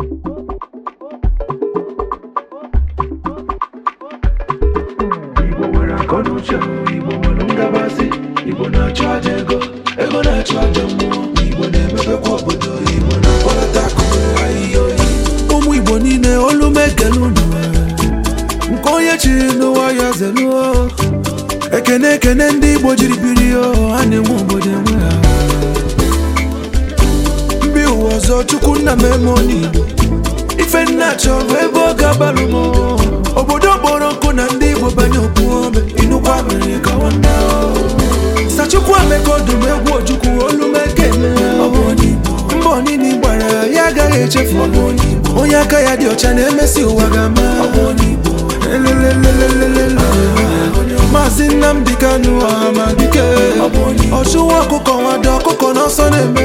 Igbo nwere Igbo nwere Igbo na ego ego na mmụọ Igbo Igbo na ụmụ Igbo niile olu mekele nke onye chiri n'ụwa ya ekene ndị Igbo jiri biri ha na-enwe obodo enwe ọzọ chukwu nna m emoni ife nna chọrọ ebe ọ ga-abalụ m obodo kpọrọ nkụ na ndị igbo banye okwu ome inukwa mere ka nwanne sachukwu ameka ọdụm egwu ojukwu olu mekeme mbọ niile gbara ya agaghị echefu onye aka ya dị ọcha na-emesi ụwa ga-ama maazị Nnamdi Kanu ọha ọchụwa ọkụkọ nwado ọkụkọ n'ọsọ na-eme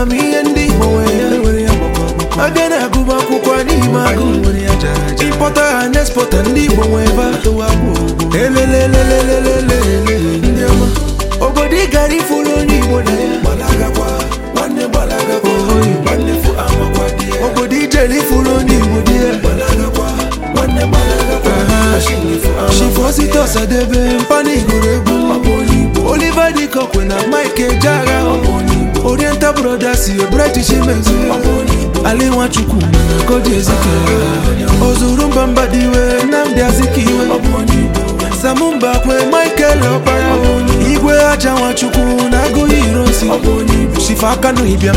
ama m ihe ndị Igbo nwere aga na-agụ akwụkwọ n'ime agụ ịkpọta ha na-espọta ndị Igbo nwee elelelelelele obodo ị gara ifuru onye Igbo na ya obodo ijere ifuru onye Igbo dị ya shifosite ọsadebe mpanigoro egwu Oliver Dịkọkwe na Mike Ejeagha Peter Brothers ihe Bright Chimezie ala Nwachukwu Kodi Ezike ozuru mba mba dị iwe Nnamdi Azikiwe Samumba kwe Michael onye, Igwe aja Nwachukwu na agụghị ironsi Chifa Kanu Ibiam